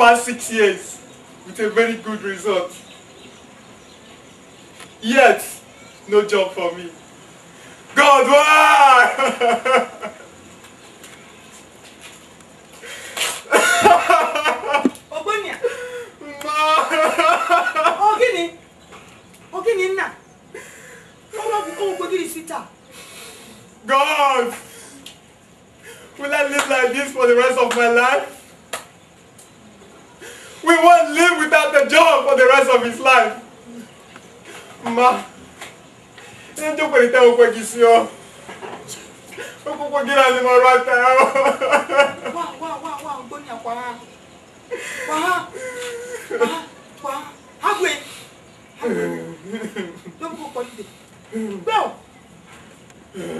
past six years with a very good result. Yet, no job for me. God, why? Ogbonia. Ma. Ogini. Oh, Ogini oh, nna. Mama bu ko gbogiri sita. God. Will I live like this for the rest of my life? We won't live without the job for the rest of his life. Ma, ẹ jókòó ní tẹ́wọ́ pẹ́ kì í sí ọ. Ó kúkú kí náà ni mo rọ ata ọ. Wá wá wá wá ògbóni àpá. Wá wá wá No Ágbè. no kò no ìdè. Bẹ́ẹ̀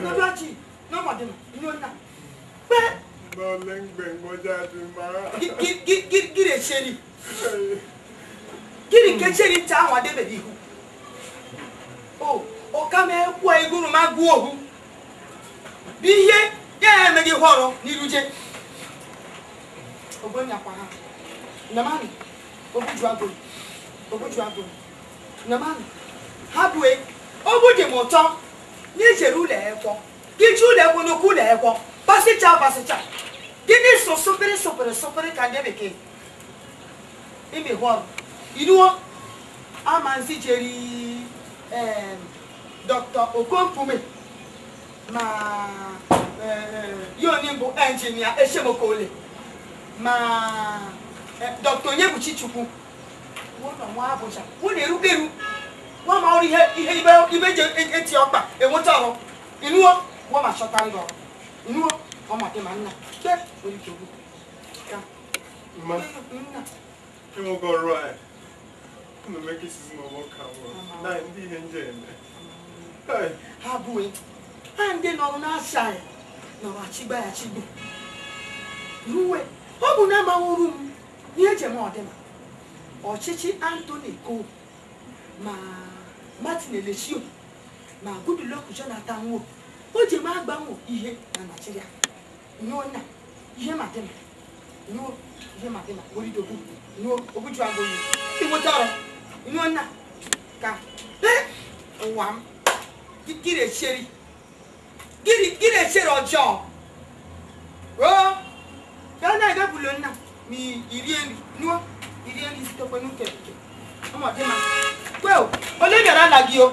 No lọ́dọ̀ no lọ́mọdé mà ní ó nà. Bẹ́ẹ̀. Lọ́ọ̀lẹ́ngbẹ̀ngbọ́jà ti máa. Gí gí gí gí lè ṣe ni gịnị nke chere ncha ahụ adebere ihu o ọkama ekwu eguruma gụọ ohu bụ ihe ya emeghị họrọ n'iruje ogbonyakwara namani ogbuju agụrụ ogbuju agụrụ namani ha bue ogbu dị m ụtọ n'ijere ụlọ ekwọ iji ụlọ ekwọ n'okwu ụlọ ekwọ pasịcha pasịcha gịnị sụsụ pịrị sụpịrị sụpịrị ka ndị bekee ibi hɔ inuwo amansi cheri ɛɛ dɔkta okonpume ma ɛɛ yoni bu ɛnjinia esemokole ma ɛ dɔkta onyebuchi chukwu wọnà wọn abọjà wọn lè rúgbèrú wọn máa rí ihe ibẹ jẹ etí ọgbà èwọtọ ọrọ ìnúwọ wọn máa ṣọta ńlọ ìnúwọ wọn máa dé máa ń nà bẹ́ẹ̀ orí kìí. You won't go right. I'm gonna make this is my work camera. Nah, indeed, Hey. How boy? And then I'm not shy. No, I chigba, I chigba. You wait. How about now my room? Near Jemodem. Or Chichi Anthony Cole. Ma Martin Elishio. Ma Goodluck Jonathan Wood. o ji ma agbanwe ihe my naijiria nyụọ na my madina What ihe you do? no obutu agbo yi ibo tọrọ inú ọ̀nà ka ẹ wà m gírí èṣeré gírí gírí èṣeré ọjọ́ o dáná ẹgbẹ́ bulo nna mi ìrí ẹni nuwọ ìrí ẹni sí tọpẹ nù kẹkẹ ọmọdé ma pé o olè yàrá làgì o.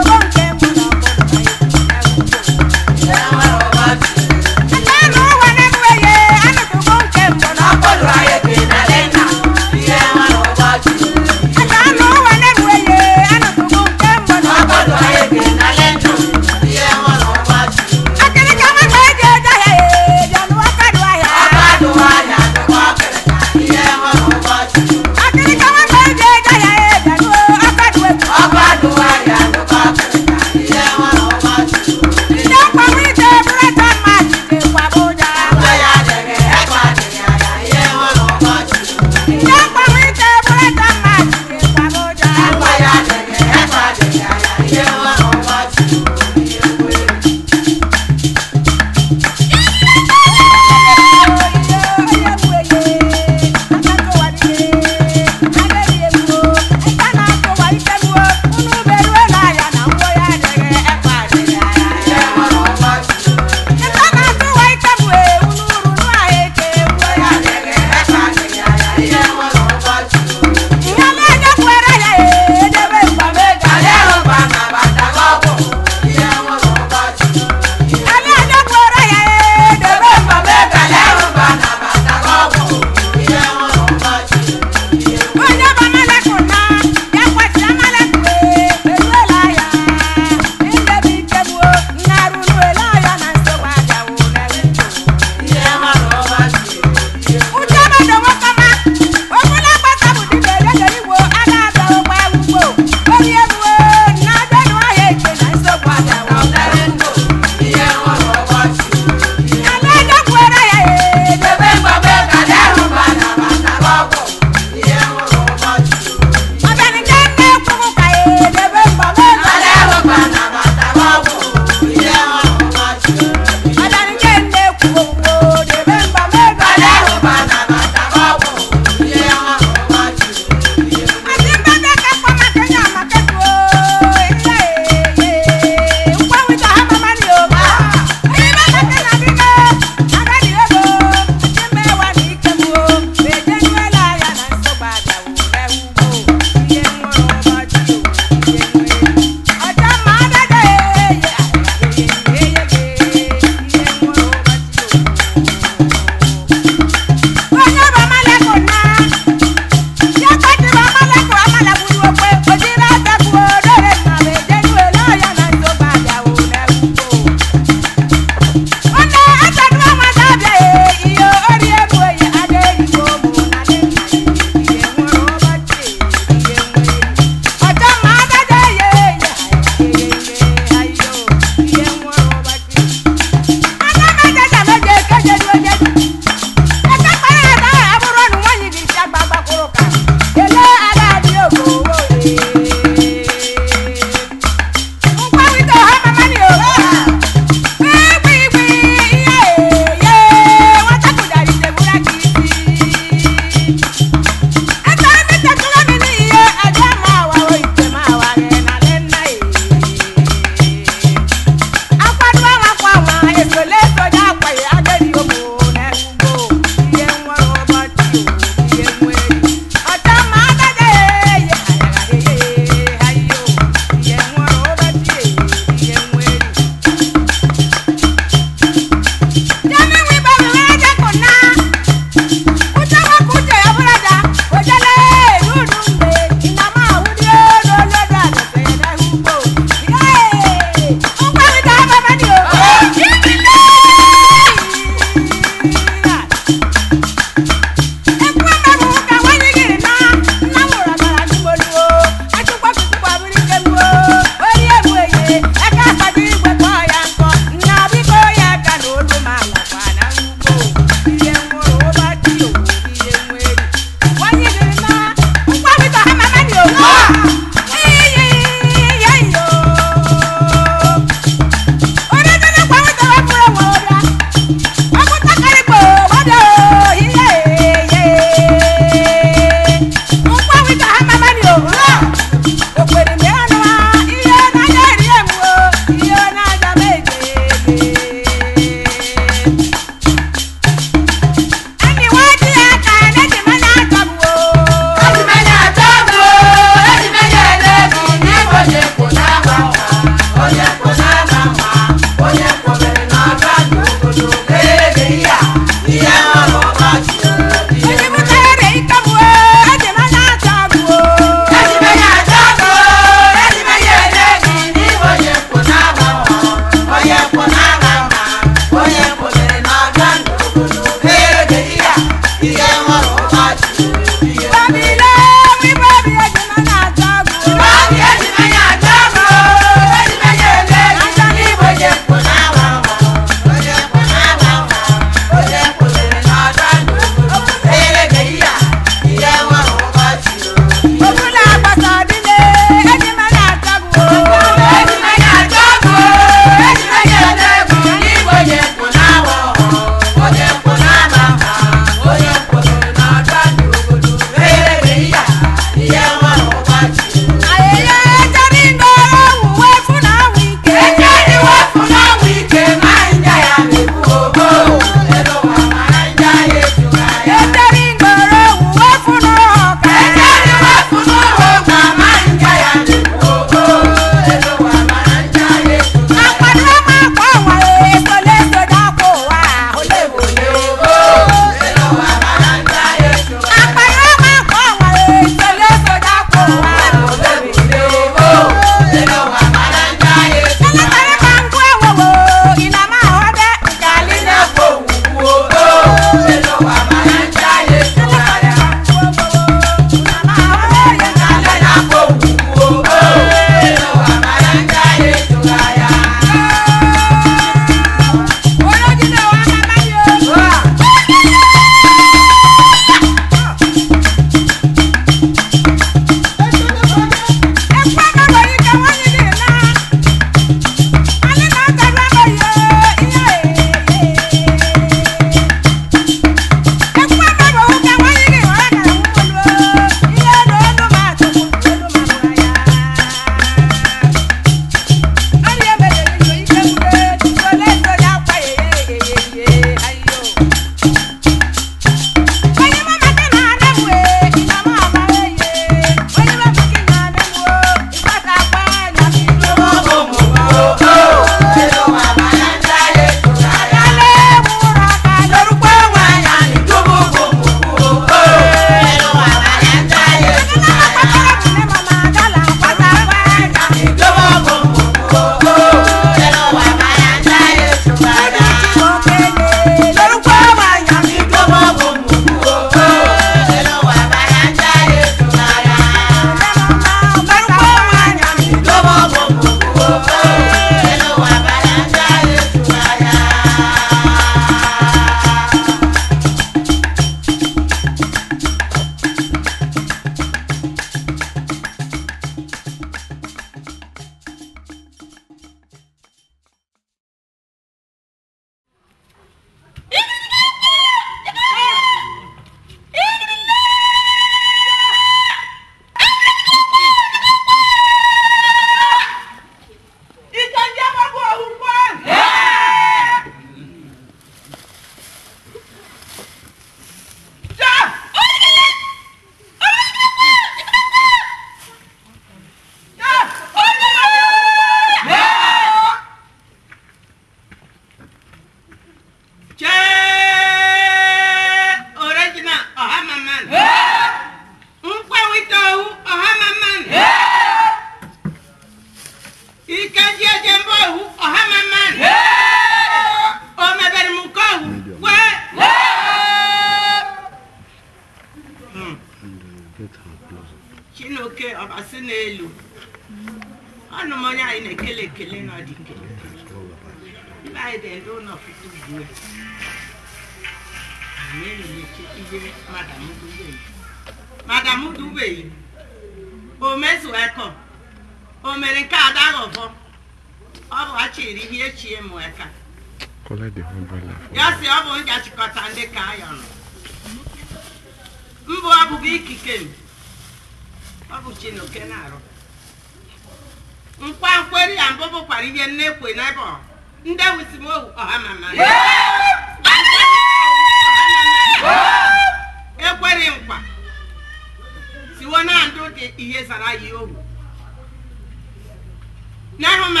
n'ahụ ma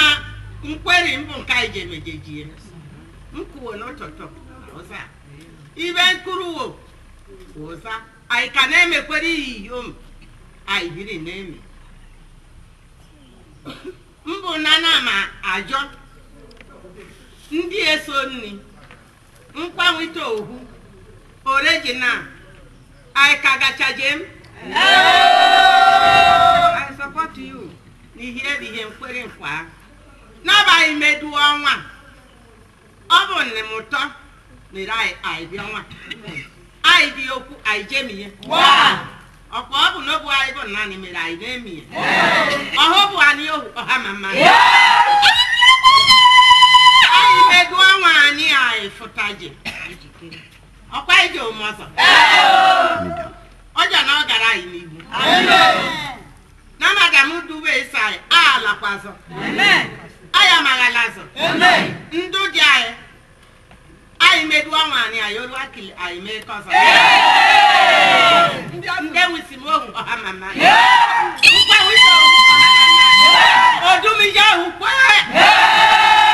nkweri mbụ nke anyị ji emejejie m kwuo n'ụtụtụ ụza ibe nkụrụwo ụza anyị ka na-emekwere iyi ihiom anyị biri na-eme mbụ na ma ajọ ndị eso nri mkpanwite ohu original anyị ka gachaje m I support you. n'ihe erighi nkwere nkwa ahụ n'abalị medu ọnwa ọ bụ nne m ụtọ mere anyị anyị bịa ọnwa anyị dị okwu anyị jemiye ọkwa ọ bụ n'obu anyị bụ naanị mere anyị na-emiye ọhụ bụ anyị ohu ọha ma mma anyị medu ọnwa anyị anyị fụtaje ọkwa anyị ji omume ọzọ ọjọ na ọ gara anyị n'ihu na magamu duwe isai alakwazo aya magalazo ndu dị anyị anyị meduwa nwaanyị anyị olu akili anyị mee kọzọ ndị enwisi m ohu ọha mama nkwa wisi ohu ọha mama odumije kwee